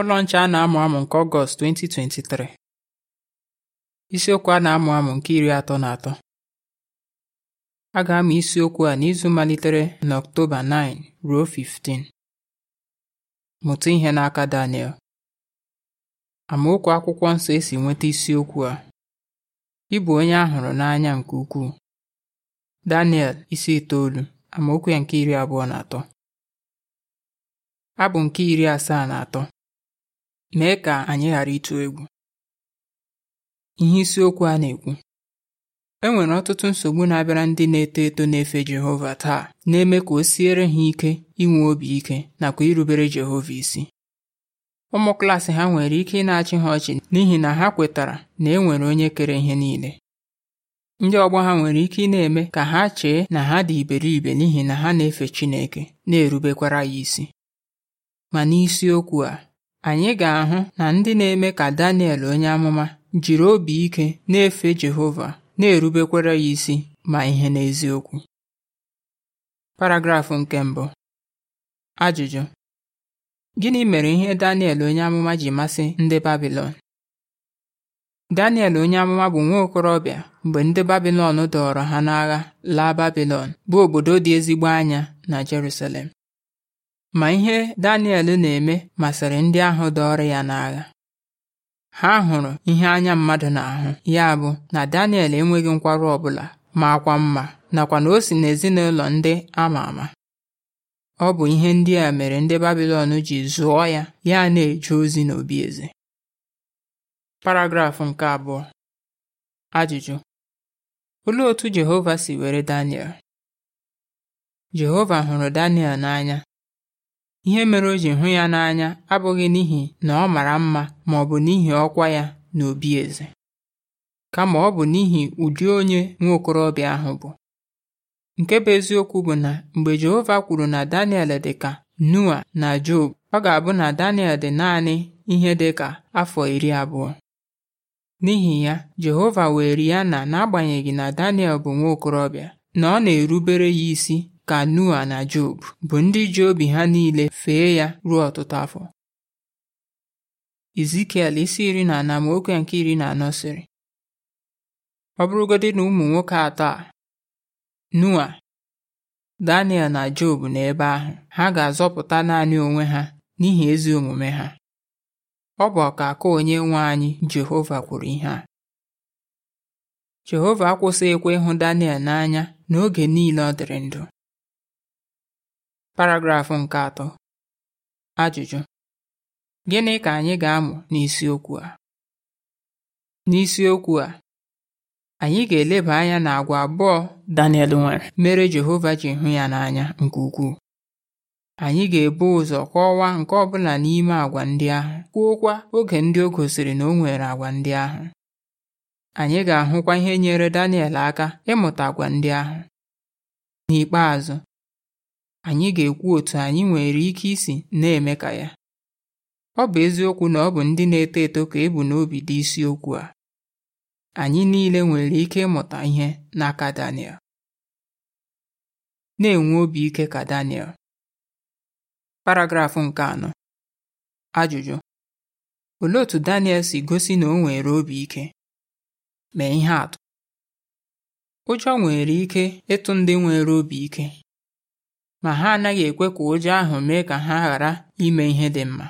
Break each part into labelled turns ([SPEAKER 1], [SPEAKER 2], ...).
[SPEAKER 1] Ụlọ Nche a na-amụ amụ nke Ọgọst 2023 Isiokwu a na-amụ amụ nke iri atọ na atọ a ga-amụ isiokwu a n'izu malitere na n'Ọktoba 9 ruo 15. Mụta ihe n'aka Daniel amaokwu akwụkwọ nsọ esi nweta isiokwu a ị bụ onye a n'anya nke ukwuu Daniel isi itoolu amaokwu ya nke iri abụọ na atọ abụ nke iri asaa na atọ mee ka anyị ghara ịtụ egwu ihe isiokwu a na-ekwu e nwere ọtụtụ nsogbu na-abịara ndị na-eto eto na-efe Jehova taa na-eme ka o siere ha ike inwe obi ike nakwa irubere Jehova isi ụmụ klaasị ha nwere ike ịna na-achị ha ọchị n'ihi na ha kwetara na e nwere onye kere ihe niile ndị ọgbọ ha nwere ike ị na-eme ka ha chee na ha dị iberibe n'ihi na ha na-efe Chineke na-erubekwara ya isi ma n'isiokwu a anyị ga-ahụ na ndị na-eme ka Daniel onye amụma jiri obi ike na-efe Jehova na-erubekwara ya isi ma ihe n'eziokwu paragrafụ nke mbụ ajụjụ gịnị mere ihe Daniel onye amụma ji masị ndị Babilọn Daniel onye amụma bụ nwa okorobịa mgbe ndị Babilọn dọọrọ ha n'agha laa Babilọn bụ obodo dị ezigbo anya na Jerusalem ma ihe Daniel na-eme masịrị ndị ahụ dọọrọ ya n'agha ha hụrụ ihe anya mmadụ na-ahụ ya bụ na Daniel enweghị nkwarụ ọbụla ma akwa mma nakwa na o si n'ezinụlọ ndị ama ama ọ bụ ihe ndị a mere ndị Babilọn ji zụọ ya ya na-eje ozi n'obi eze paragrafụ nke abụọ ajụjụ olee otu Jehova si were Daniel Jehova hụrụ Daniel n'anya Ihe mere o ji hụ ya n'anya abụghị n'ihi na ọ mara mma ma ọ bụ n'ihi ọkwa ya n'obi eze, kama ọ bụ n'ihi ụdị onye okorobịa ahụ bụ. Nke bụ eziokwu bụ na mgbe Jehova kwuru na Daniel dị ka Noa na Job, ọ ga-abụ na Daniel dị naanị ihe dị ka afọ iri abụọ. N'ihi ya, Jehova were ya na n'agbanyeghị na Daniel bụ okorobịa na ọ na-erubere ya isi ka Noa na Job bụ ndị ji obi ha niile fee ya ruo ọtụtụ afọ Izikiel isi iri na anọ amaokwu nke iri na anọ sịrị ọ bụrụgodị na ụmụ nwoke atọ a Noa Daniel na Job n'ebe ahụ ha ga-azọpụta naanị onwe ha n'ihi ezi omume ha ọ bụ ọkaka onye nwe anyị Jehova kwuru ihe a Jehova akwụsịghịkwa ịhụ Daniel n'anya n'oge niile ọ dịrị ndụ Paragrafụ nke atọ Ajụjụ Gịnị ka anyị ga-amụ n'isiokwu a? N'isiokwu a, anyị ga-eleba anya na agwa abụọ Daniel nwere mere Jehova ji hụ ya n'anya nke ukwuu. Anyị ga-ebu ụzọ kọwaa nke ọbụla n'ime agwa ndị ahụ kwuokwa oge ndị o gosiri na o nwere agwa ndị ahụ. Anyị ga-ahụkwa ihe nyere Daniel aka ịmụta agwa ndị ahụ. N'ikpeazụ anyị ga-ekwu otu anyị nwere ike isi na-eme ka ya ọ bụ eziokwu na ọ bụ ndị na-eto eto ka ebu n'obi dị isiokwu a anyị niile nwere ike ịmụta ihe n'aka Daniel na-enwe obi ike ka Daniel paragrafụ nke anọ ajụjụ olee otu Daniel si gosi na o nwere obi ike mee ihe atụ ụjọ nwere ike ịtụ ndị nwere obi ike ma ha anaghị ekwe ka ụjọ ahụ mee ka ha ghara ime ihe dị mma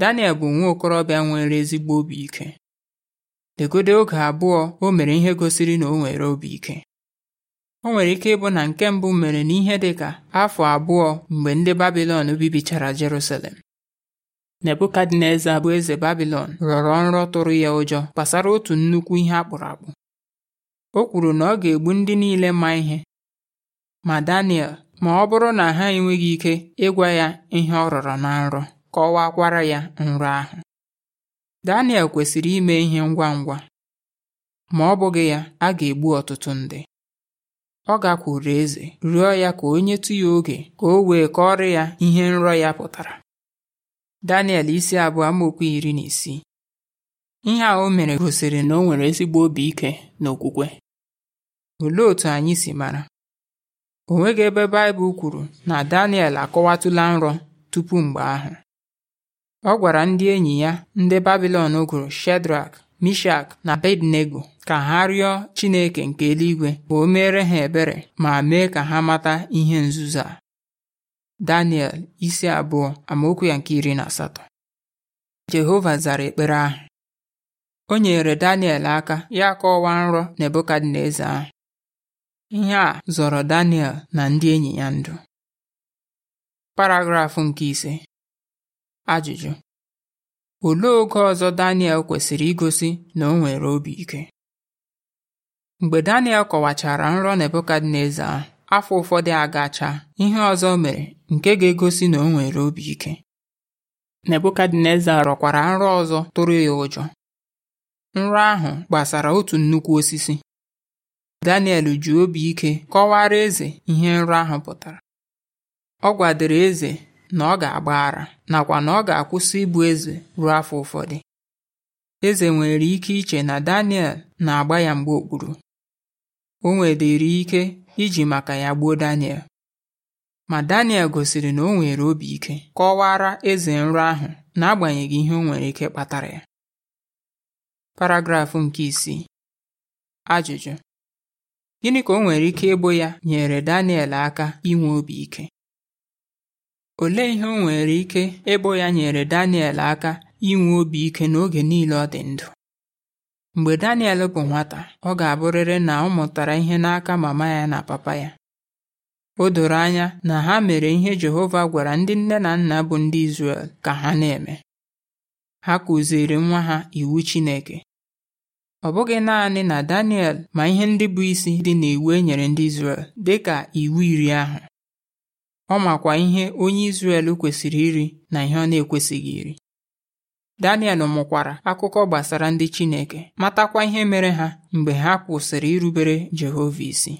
[SPEAKER 1] Daniel bụ nwa okorobịa nwere ezigbo obi ike degode oge abụọ o mere ihe gosiri na o nwere obi ike o nwere ike ịbụ na nke mbụ mere n'ihe dị ka afọ abụọ mgbe ndị Babilọn bibichara Jerusalem Nebukadneza bụ eze Babilọn rọrọ nrọ tụrụ ya ụjọ gbasara otu nnukwu ihe akpụrụ akpụ o kwuru na ọ ga-egbu ndị niile ma ihe ma Daniel ma ọ bụrụ na ha enweghị ike ịgwa ya ihe ọ rọrọ na nrọ kọwakwara ya nrọ ahụ Daniel kwesịrị ime ihe ngwa ngwa ma ọ bụghị ya a ga-egbu ọtụtụ ndị ọ gakwuru eze rịọ ya ka onye nyetụ ya oge ka o wee kọrọ ya ihe nrọ ya pụtara Daniel isi abụọ amaokwu iri na isii ihe a o mere gosiri na o nwere ezigbo obi ike na okwukwe olee otú anyị si mara O nweghị ebe Baịbụl kwuru na Daniel akọwatụla nrọ tupu mgbe ahụ. Ọ gwara ndị enyi ya ndị Babilọn gụrụ Shedrak, Mishak na Abednego ka ha rịọ Chineke nke eluigwe ka o meere ha ebere ma mee ka ha mata ihe nzuzo a. Daniel isi abụọ amaokwu ya nke iri na asatọ. Jehova zara ekpere ahụ. O nyere Daniel aka ya kọwaa nrọ Nebukadneza ahụ. Ihe a zọrọ Daniel na ndị enyi ya ndụ. Paragrafụ nke ise Ajụjụ Olee oge ọzọ Daniel kwesịrị igosi na o nwere obi ike? Mgbe Daniel kọwachara nrọ Nebukadneza afọ ụfọdụ agacha, ihe ọzọ mere nke ga-egosi na o nwere obi ike. Nebukadneza rọkwara nrọ ọzọ tụrụ ya ụjọ. Nrọ ahụ gbasara otu nnukwu osisi Daniel ji obi ike kọwara eze ihe nrọ ahụ pụtara ọ gwadoro eze na ọ ga-agba ara nakwa na ọ ga-akwụsị ịbụ eze ruo afọ ụfọdụ eze nwere ike iche na Daniel na-agba ya mgbe okpuru o nwedịrị ike iji maka ya gbuo Daniel ma Daniel gosiri na o nwere obi ike kọwara eze nrọ ahụ n'agbanyeghị ihe o nwere ike kpatara ya paragrafụ nke isii ajụjụ Gịnị ka o nwere ike ịbụ ya nyere Daniel aka inwe obi ike? Olee ihe o nwere ike ịbụ ya nyere Daniel aka inwe obi ike n'oge niile ọ dị ndụ? Mgbe Daniel bụ nwata, ọ ga-abụrịrị na ọ mụtara ihe n'aka mama ya na papa ya. O doro anya na ha mere ihe Jehova gwara ndị nne na nna bụ ndị Izrel ka ha na-eme. Ha kụziiri nwa ha iwu Chineke Ọ bụghị naanị na Daniel ma ihe ndị bụ isi dị n'iwu e nyere ndị Izrel dịka iwu iri ahụ. Ọ makwa ihe onye Izrel kwesịrị iri na ihe ọ na-ekwesịghị iri. Daniel mụkwara akụkọ gbasara ndị Chineke matakwa ihe mere ha mgbe ha kwụsịrị irubere Jehova isi.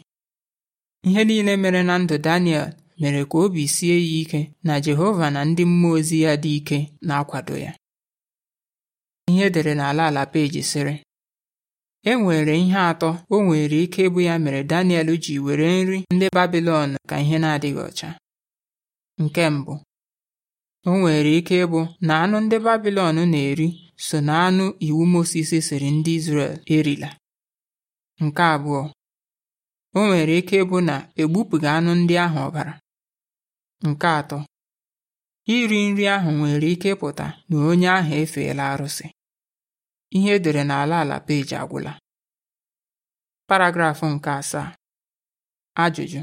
[SPEAKER 1] Ihe niile mere na ndụ Daniel mere ka obi sie ya ike na Jehova na ndị mmụọ ozi ya dị ike na-akwado ya. Ihe edere n'ala ala peji sịrị E nwere ihe atọ o nwere ike ịbụ ya mere Daniel ji were nri ndị Babilọn ka ihe na-adịghị ọcha. Nke mbụ o nwere ike ịbụ na anụ ndị Babilọn na-eri so na anụ iwu Mosis siri ndị Izrel erila. Nke abụọ o nwere ike ịbụ na egbupụghị anụ ndị ahụ ọbara. Nke atọ iri nri ahụ nwere ike ịpụta na onye ahụ efeela arụsị. ihe edere n'ala ala peji agwụla paragrafụ nke asaa ajụjụ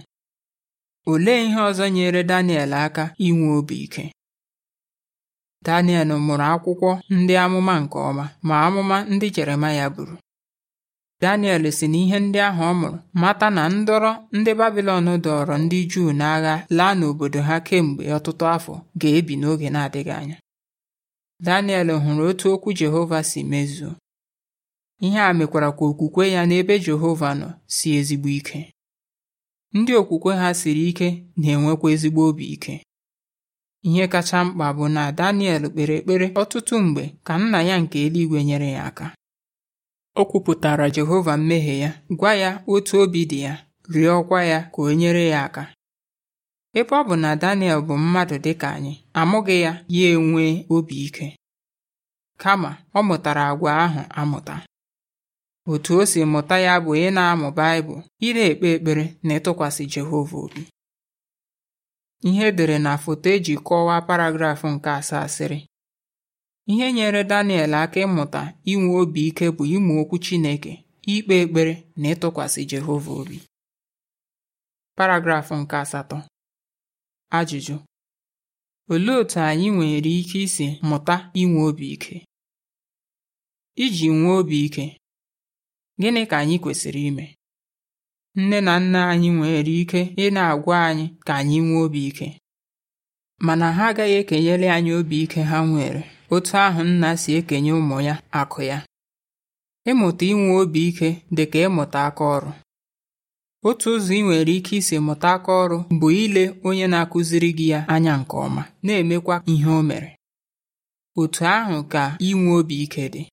[SPEAKER 1] olee ihe ọzọ nyere Daniel aka inwe obi ike Daniel mụrụ akwụkwọ ndị amụma nke ọma ma amụma ndị Jeremaya buru Daniel si na ihe ndị ahụ ọ mụrụ mata na ndọrọ ndị Babilọn dọọrọ ndị Juu n'agha laa n'obodo ha kemgbe ọtụtụ afọ ga-ebi n'oge na-adịghị anya Daniel hụrụ otu okwu Jehova si mezuo. Ihe a mekwara ka okwukwe ya n'ebe Jehova nọ si ezigbo ike. Ndị okwukwe ha siri ike na-enwekwa ezigbo obi ike. Ihe kacha mkpa bụ na Daniel kpere ekpere ọtụtụ mgbe ka nna ya nke eluigwe nyere ya aka. O kwupụtara Jehova mmehie ya, gwa ya otu obi dị ya, rịọkwa ya ka o nyere ya aka. Ebe ọ bụ na Daniel bụ mmadụ dịka anyị, amụghị ya ya enwe obi ike, kama ọ mụtara agwa ahụ amụta. Otu o si mụta ya bụ ị na-amụ Baịbụl, ị na-ekpe ekpere na ịtụkwasị Jehova obi. Ihe edere na foto eji kọwaa paragrafụ nke asaa sịrị ihe nyere Daniel aka ịmụta inwe obi ike bụ ịmụ okwu Chineke, ikpe ekpere na ịtụkwasị Jehova obi. Paragrafụ nke asatọ Ajụjụ: Olee otú anyị nwere ike isi mụta inwe obi ike? Iji nwee obi ike, gịnị ka anyị kwesịrị ime? Nne na nna anyị nwere ike ị na-agwa anyị ka anyị nwee obi ike, mana ha agaghị ekenyere anyị obi ike ha nwere otu ahụ nna si ekenye ụmụ ya akụ ya. Ịmụta inwe obi ike dị ka ịmụta aka ọrụ. otu ụzọ ị nwere ike isi mụta aka ọrụ bụ ile onye na-akụziri gị ya anya nke ọma na-emekwa ihe o mere otu ahụ ka inwe obi ike dị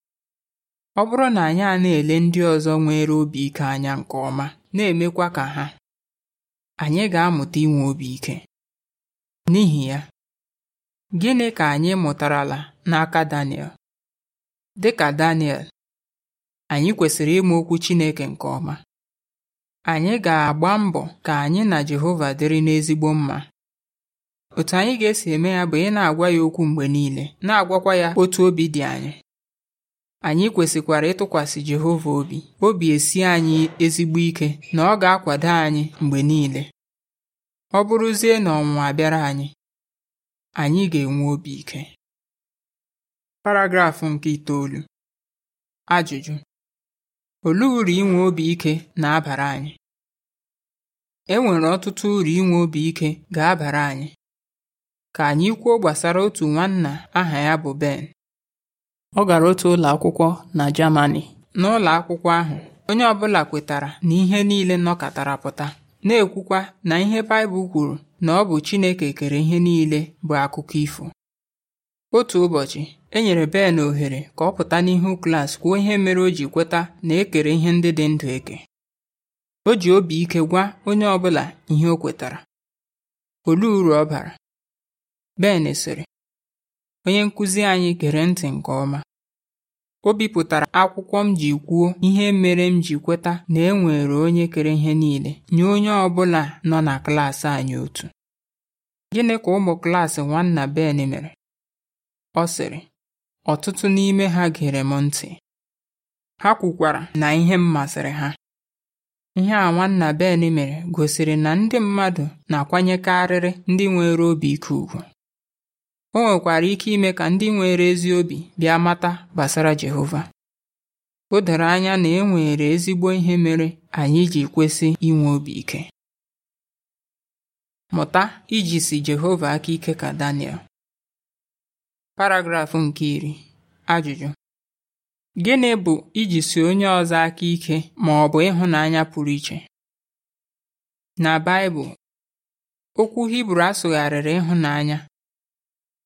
[SPEAKER 1] ọ bụrụ na anyị a na-ele ndị ọzọ nwere obi ike anya nke ọma na-emekwa ka ha anyị ga-amụta inwe obi ike n'ihi ya gịnị ka anyị mụtarala n'aka Daniel dịka Daniel anyị kwesịrị ịma okwu Chineke nke ọma Anyị ga-agba mbọ ka anyị na Jehova dịrị n'ezigbo mma. Otu anyị ga-esi eme ya bụ ị na-agwa ya okwu mgbe niile, na-agwakwa ya otu obi dị anyị. Anyị kwesịkwara ịtụkwasị Jehova obi, obi esi anyị ezigbo ike na ọ ga-akwado anyị mgbe niile. Ọ bụrụzie na ọnwụnwa abịara anyị, anyị ga-enwe obi ike. Paragraf nke itoolu. Ajụjụ: Olee uru inwe obi ike na-abara anyị? E nwere ọtụtụ uru inwe obi ike ga-abara anyị. Ka anyị kwuo gbasara otu nwanna aha ya bụ Ben. Ọ gara otu ụlọ akwụkwọ na jamani N'ụlọ akwụkwọ ahụ, onye ọbụla kwetara na ihe niile nọkatara pụta, na-ekwukwa na ihe Baịbụl kwuru na ọ bụ Chineke kere ihe niile bụ akụkọ ifo. Otu ụbọchị, e nyere Ben ohere ka ọ pụta n'ihu klas kwuo ihe mere o ji kweta na e ihe ndị dị ndụ eke. O ji obi ike gwa onye ọbụla ihe o kwetara. Olee uru ọ bara? Ben sịrị, onye nkụzi anyị gere ntị nke ọma. O bipụtara akwụkwọ m ji kwuo ihe mere m ji kweta na e nwere onye kere ihe niile nye onye ọ bụla nọ na klaasị anyị otu. Gịnị ka ụmụ klaasị nwanna Ben mere? Ọ sịrị, ọtụtụ n'ime ha gere m ntị. Ha kwukwara na ihe m masịrị ha. Ihe a Nwanna Ben mere gosiri na ndị mmadụ na-akwanyekarịrị ndị nwere obi ike ugwu. O nwekwara ike ime ka ndị nwere ezi obi bịa mata gbasara Jehova. O doro anya na e nwere ezigbo ihe mere anyị ji kwesị inwe obi ike. Mụta iji si Jehova aka ike ka Daniel. Paragraf nke iri. Ajụjụ Gịnị bụ iji ijisi onye ọzọ aka ike ma ọ bụ ịhụnanya pụrụ iche? Na Baịbụl, okwu Hibru asụgharịrị ịhụnanya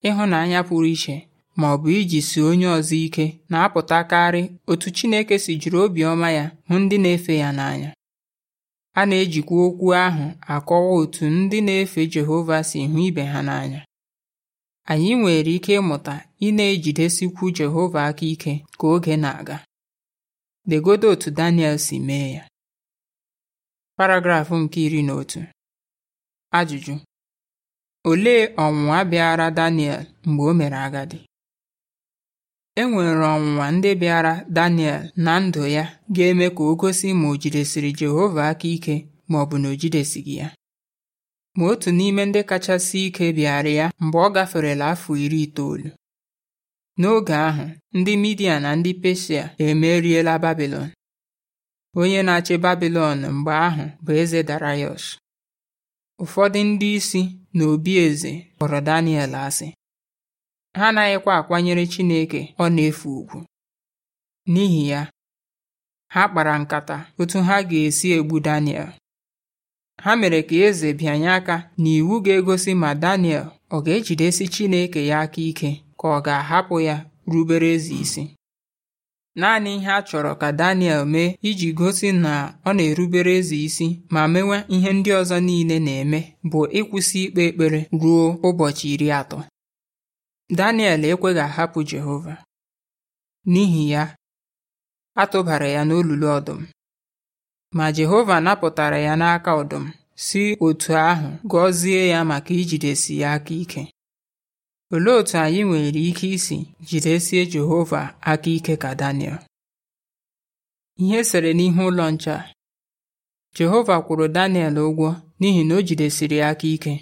[SPEAKER 1] ịhụnanya pụrụ iche ma ọ bụ iji ijisi onye ọzọ ike na-apụtakarị otu Chineke si jiri obiọma ya hụ ndị na-efe ya n'anya. A na-ejikwa okwu ahụ akọwa otu ndị na-efe Jehova si hụ ibe ha n'anya. anyị nwere ike ịmụta ị na-ejidesikwu Jehova aka ike ka oge na-aga legodo otu Daniel si mee ya paragraf nke iri na otu ajụjụ olee ọnwụnwa bịara Daniel mgbe o mere agadi e nwere ọnwụnwa ndị bịara Daniel na ndụ ya ga-eme ka o gosi ma o jidesiri Jehova aka ike ma ọ bụ na o jidesighị ya ma otu n'ime ndị kachasị ike bịara ya mgbe ọ gaferela afọ iri itoolu. N'oge ahụ, ndị Midia na ndị Peshia emeriela babilon Onye na-achị babilon mgbe ahụ bụ eze Darayọsh. Ụfọdụ ndị isi na obi eze kpọrọ Daniel asị. Ha anaghịkwa akwanyere Chineke ọ na-efe ugwu. N'ihi ya, ha kpara nkata otu ha ga-esi egbu Daniel. ha mere ka eze bịanye aka na iwu ga-egosi ma Daniel ọ ga-ejidesi Chineke ya aka ike ka ọ ga-ahapụ ya rubere eze isi naanị ihe a chọrọ ka Daniel mee iji gosi na ọ na-erubere eze isi ma mewe ihe ndị ọzọ niile na-eme bụ ịkwụsị ikpe ekpere ruo ụbọchị iri atọ Daniel ekweghị ahapụ Jehova n'ihi ya a tụbara ya n'olulu ọdụm Ma Jehova napụtara ya n'aka ọdụm si otu ahụ gọzie ya maka ijidesi ya aka ike. Olee otú anyị nwere ike isi jidesie Jehova aka ike ka Daniel? Ihe sere n'ihu ụlọ nche Jehova kwụrụ Daniel ụgwọ n'ihi na o jidesiri aka ike.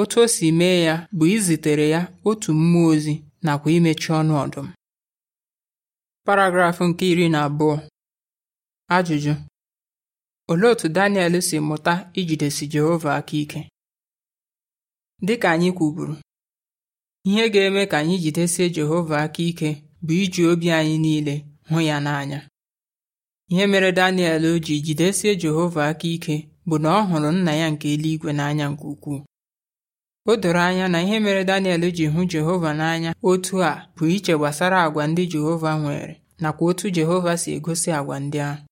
[SPEAKER 1] Otu o si mee ya bụ izitere ya otu mmụọ ozi nakwa imechi ọnụ ọdụm. Paragraf nke iri na abụọ. Ajụjụ Olee otú Daniel si mụta ijidesi Jehova aka ike? Dị ka anyị kwuburu, ihe ga-eme ka anyị jidesie Jehova aka ike bụ iji obi anyị niile hụ ya n'anya. Ihe mere Daniel o ji jidesie Jehova aka ike bụ na ọ hụrụ nna ya nke eluigwe n'anya nke ukwuu. O doro anya na ihe mere Daniel ji hụ Jehova n'anya otu a bụ iche gbasara agwa ndị Jehova nwere nakwa otu Jehova si egosi àgwà ndị ahụ.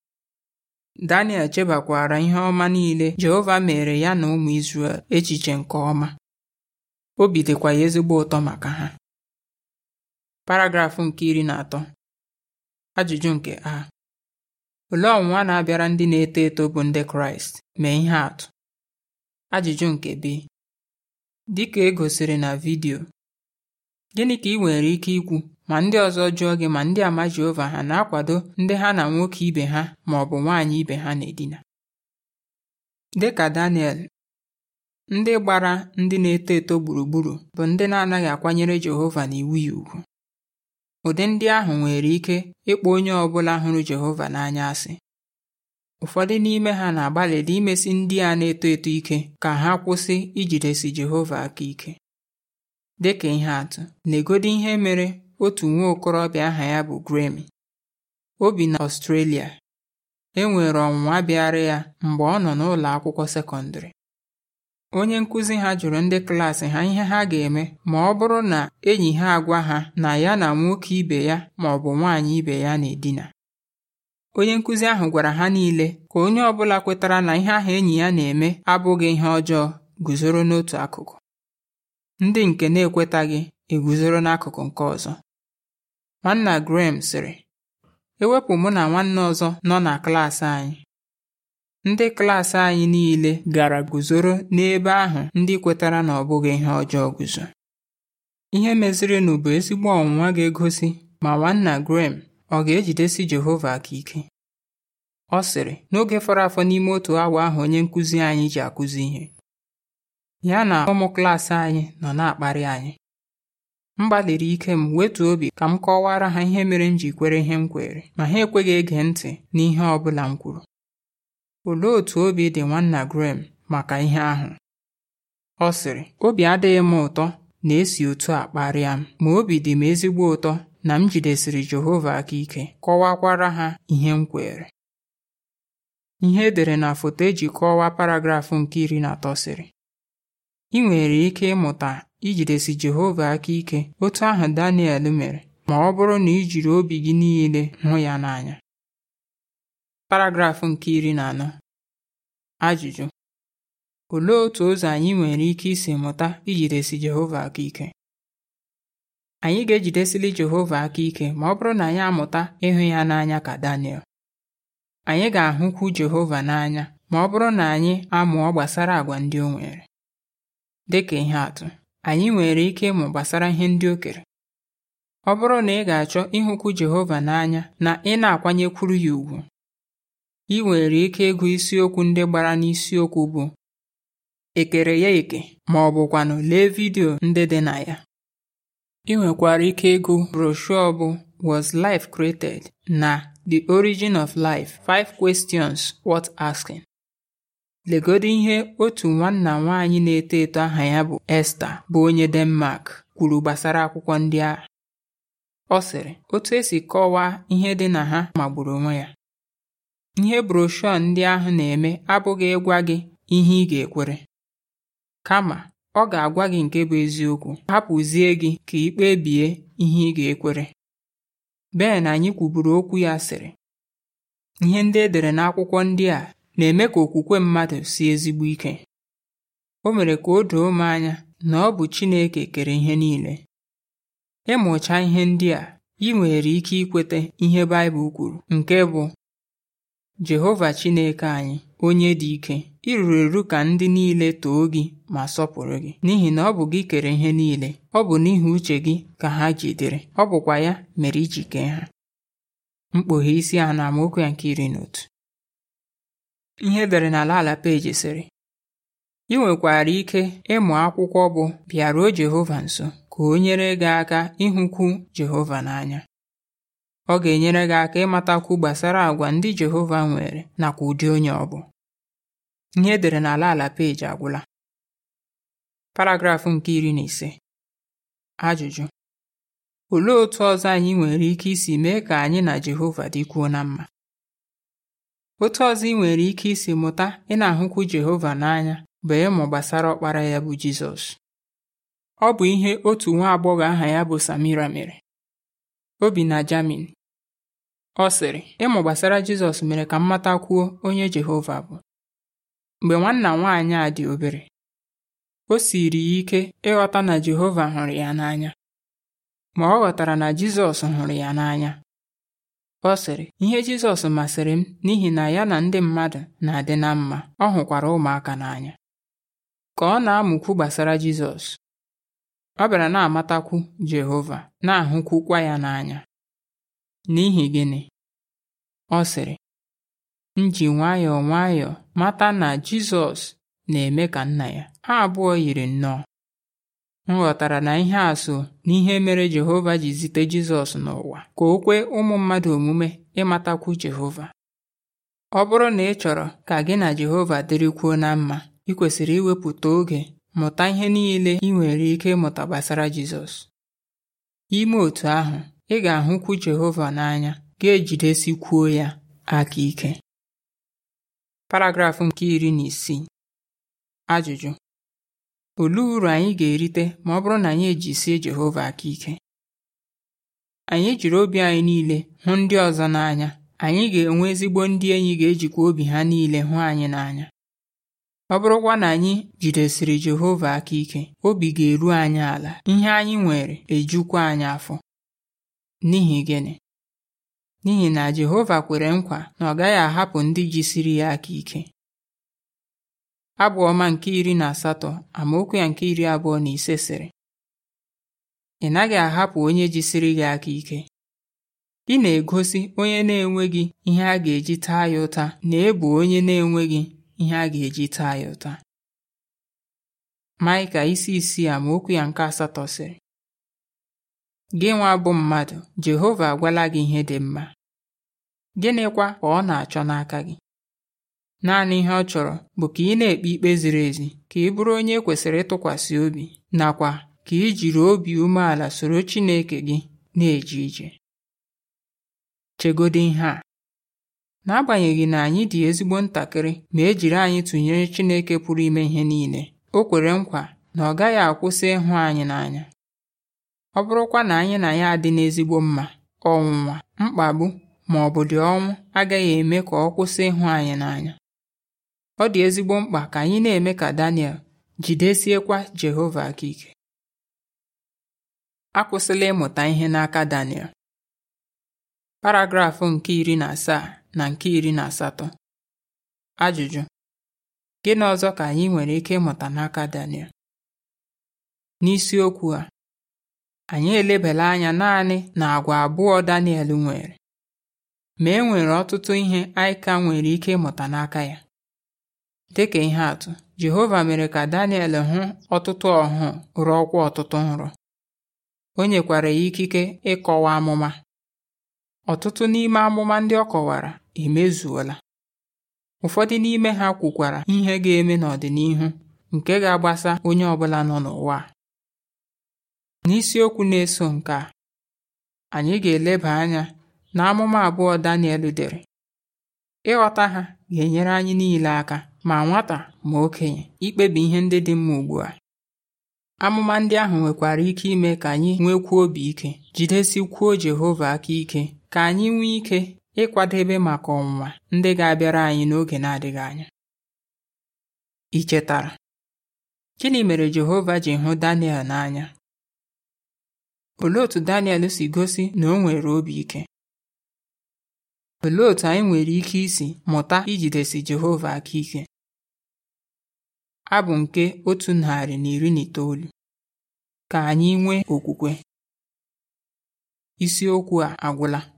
[SPEAKER 1] Daniel chebakwara ihe ọma niile Jehova mere ya na ụmụ Izrel echiche nke ọma obi dịkwa ya ezigbo ụtọ maka ha paragrafụ nke iri na atọ ajụjụ nke a olee ọnwụnwa na-abịara ndị na-eto eto bụ ndị Kraịst mee ihe atụ ajụjụ nke b dịka e gosiri na vidiyo gịnị ka ị nwere ike ikwu ma ndị ọzọ jụọ gị ma ndị ama Jehova ha na-akwado ndị ha na nwoke ibe ha ma ọ bụ nwaanyị ibe ha na-edina dịka Daniel ndị gbara ndị na-eto eto gburugburu bụ ndị na-anaghị akwanyere Jehova na iwu ya ugwu ụdị ndị ahụ nwere ike ịkpọ onye ọ bụla hụrụ Jehova n'anya asị ụfọdụ n'ime ha na-agbalịdị imesi ndị a na-eto eto ike ka ha kwụsị ijidesi Jehova aka ike dịka ihe atụ negodi ihe mere otu nwa okorobịa aha ya bụ Grammy o bi na Australia e nwere ọnwụnwa bịara ya mgbe ọ nọ n'ụlọ akwụkwọ sekọndịrị onye nkụzi ha jụrụ ndị klaasị ha ihe ha ga-eme ma ọ bụrụ na enyi ha agwa ha na ya na nwoke ibe ya ma ọ bụ nwaanyị ibe ya na-edina onye nkụzi ahụ gwara ha niile ka onye ọ bụla kwetara na ihe ahụ enyi ya na-eme abụghị ihe ọjọọ guzoro n'otu akụkụ ndị nke na-ekwetaghị eguzoro n'akụkụ nke ọzọ Nwanna Graham sịrị, e wepụ mụ na nwanne ọzọ nọ na klaasị anyị ndị klaasị anyị niile gara guzoro n'ebe ahụ ndị kwetara na ọ bụghị ihe ọjọọ guzo ihe mezirinụ bụ ezigbo ọnwụnwa ga-egosi ma nwanna Graham ọ ga-ejidesi Jehova aka ike ọ sịrị n'oge fọrọ afọ n'ime otu awa ahụ onye nkụzi anyị ji akụzi ihe ya na ụmụ klaasị anyị nọ na-akparị anyị m gbalịrị ike m wetuo obi ka m kọwara ha ihe mere m ji kwere ihe m kwere ma ha ekweghị ege ntị n'ihe ọ bụla m kwuru olee otú obi dị nwanna Graham maka ihe ahụ ọ sịrị obi adịghị m ụtọ na esi otu a kparịa m ma obi dị m ezigbo ụtọ na m jidesiri Jehova aka ike kọwakwara ha ihe m kwere ihe edere na foto eji kọwaa paragrafụ nke iri na atọ sịrị ị nwere ike ịmụta ijidesi Jehova aka ike otu ahụ Daniel mere ma ọ bụrụ na i jiri obi gị niile hụ ya n'anya paragraf nke iri na anọ ajụjụ olee otu ụzọ anyị nwere ike isi mụta ijidesi Jehova aka ike anyị ga-ejidesili Jehova aka ike ma ọ bụrụ na anyị amụta ịhụ ya n'anya ka Daniel anyị ga-ahụkwu Jehova n'anya ma ọ bụrụ na anyị amụọ gbasara àgwà ndị o nwere dịka ihe atụ anyị nwere ike ịmụ gbasara ihe ndị o kere ọ bụrụ na ị ga-achọ ịhụkwu Jehova n'anya na ị na-akwanyekwuru ya ùgwù ị nwere ike ịgụ isiokwu ndị gbara n'isiokwu bụ ekere ya eke ma ọ bụkwanụ lee vidio ndị dị na ya ị nwekwara ike ịgụ broshuọ bụ Was Life Created na The Origin of Life: Five Questions Worth Asking Legodu ihe otu nwanna nwaanyị na-eto eto aha ya bụ Esta bụ onye Denmark kwuru gbasara akwụkwọ ndị a Ọ sịrị, otu esi kọwaa ihe dị na ha magburu onwe ya. Ihe broshọ ndị ahụ na-eme abụghị ịgwa gị ihe ị ga-ekwere. Kama, ọ ga-agwa gị nke bụ eziokwu hapụzie gị ka ị ihe ị ga-ekwere. Ben anyị kwuburu okwu ya sịrị, ihe ndị edere n'akwụkwọ ndị a na-eme ka okwukwe mmadụ si ezigbo ike o mere ka o doo m anya na ọ bụ Chineke kere ihe niile ịmụcha ihe ndị a ị nwere ike ikweta ihe Baịbụl kwuru nke bụ Jehova Chineke anyị onye dị ike ịrụrụ eru ka ndị niile too gị ma sọpụrụ gị n'ihi na ọ bụ gị kere ihe niile ọ bụ n'ihi uche gị ka ha jidere ọ bụkwa ya mere iji kee ha mkpughe isi a na amaokwu ya nke iri na otu Ihe edere n'ala ala peeji sịrị ị nwekwara ike ịmụ akwụkwọ bụ Bịaruo Jehova Nso ka o nyere gị aka ịhụkwu Jehova n'anya ọ ga-enyere gị aka ịmatakwu gbasara àgwa ndị Jehova nwere nakwa ụdị onye ọ bụ ihe dere n'ala ala peji agwụla paragrafụ nke iri na ise ajụjụ olee otu ọzọ anyị nwere ike isi mee ka anyị na Jehova dịkwuo na mma Otu ọzọ ị nwere ike isi mụta ị na-ahụkwu Jehova n'anya bụ ịmụ gbasara ọkpara ya bụ Jizọs. Ọ bụ ihe otu nwa agbọghọ aha ya bụ Samira mere. O bi na Jamin. Ọ sịrị, ịmụ gbasara Jizọs mere ka m matakwuo onye Jehova bụ. Mgbe nwanna nwaanyị a dị obere, o siiri ya ike ịghọta na Jehova hụrụ ya n'anya. Ma ọ ghọtara na Jizọs hụrụ ya n'anya. Ọ sịrị ihe Jizọs masịrị m n'ihi na ya na ndị mmadụ na-adị na mma ọ hụkwara ụmụaka n'anya ka ọ na-amụkwu gbasara Jizọs ọ bịara na-amatakwu Jehova na-ahụkwukwa ya n'anya n'ihi gịnị ọ sịrị m ji nwayọọ nwayọọ mata na Jizọs na-eme ka nna ya ha abụọ yiri nnọọ m ghọtara na ihe asụ na ihe mere Jehova ji zite Jizọs n'ụwa ka o kwee ụmụ mmadụ omume ịmatakwu Jehova ọ bụrụ na ị chọrọ ka gị na Jehova dịrịkwuo na mma ị kwesịrị iwepụta oge mụta ihe niile ị nwere ike ịmụta gbasara Jizọs ime otu ahụ ị ga-ahụkwu Jehova n'anya ga-ejidesikwuo ya aka ike paragrafụ nke iri na isii ajụjụ Olee uru anyị ga-erite ma ọ bụrụ na anyị ejisie Jehova aka ike? Anyị jiri obi anyị niile hụ ndị ọzọ n'anya, anyị ga-enwe ezigbo ndị enyi ga-ejikwa obi ha niile hụ anyị n'anya. Ọ bụrụkwa na anyị jidesiri Jehova aka ike, obi ga-eru anyị ala, ihe anyị nwere ejukwa anyị afọ. N'ihi gịnị? N'ihi na Jehova kwere nkwa na ọ gaghị ahapụ ndị jisiri ya aka ike. Abụ ọma nke iri na asatọ amaokwu ya nke iri abụọ na ise sịrị ị naghị ahapụ onye jisiri gị aka ike "Gị na-egosi onye na-enweghị ihe a ga-eji taa ya ụta na ebu onye na-enweghị ihe a ga-eji taa ya ụta Maịka isi isii amaokwu ya nke asatọ sịrị gị nwa bụ mmadụ Jehova agwala gị ihe dị mma gịnịkwa ka ọ na-achọ n'aka gị naanị ihe ọ chọrọ bụ ka ị na-ekpe ikpe ziri ezi ka ị bụrụ onye e kwesịrị ịtụkwasị obi nakwa ka ị jiri obi umeala soro Chineke gị na-eje ije chegodị ihe a n'agbanyeghị na anyị dị ezigbo ntakịrị ma e jiri anyị tụnyere Chineke pụrụ ime ihe niile o kwere nkwa na ọ gaghị akwụsị ịhụ anyị n'anya ọ bụrụkwa na anyị na ya adị n'ezigbo mma ọnwụnwa mkpagbu ma ọ bụ dị ọnwụ agaghị eme ka ọ kwụsị ịhụ anyị n'anya ọ dị ezigbo mkpa ka anyị na-eme ka Daniel jidesiekwa Jehova aka ike akwụsịla ịmụta ihe n'aka Daniel paragrafụ nke iri na asaa na nke iri na asatọ ajụjụ gịnị ọzọ ka anyị nwere ike ịmụta n'aka Daniel n'isiokwu a anyị elebela anya naanị na abụọ Daniel nwere ma e nwere ọtụtụ ihe anyị ka nwere ike ịmụta n'aka ya ka ihe atụ, Jehova mere ka Daniel hụ ọtụtụ ọhụụ ọkwa ọtụtụ nrọ. O nyekwara ya ikike ịkọwa amụma. Ọtụtụ n'ime amụma ndị ọ kọwara emezuola. Ụfọdụ n'ime ha kwukwara ihe ga-eme n'ọdịnihu nke ga-agbasa onye ọbụla nọ n'ụwa N'isiokwu na-eso nke a, anyị ga-eleba anya n'amụma abụọ Daniel dere. Ịghọta ha ga-enyere anyị niile aka ma nwata ma okenye ikpebi ihe ndị dị mma ugbu a amụma ndị ahụ nwekwara ike ime ka anyị nwekwuo obi ike jidesi kwuo Jehova aka ike ka anyị nwee ike ịkwadebe maka ọnwụnwa ndị ga-abịara anyị n'oge na-adịghị anya ị chetara gịnị mere Jehova ji hụ Daniel n'anya olee otú Daniel si gosi na o nwere obi ike Olee otú anyị nwere ike isi mụta ijidesi Jehova aka ike? Abụ nke otu narị na iri na itoolu ka anyị nwee okwukwe. Isiokwu a agwụla.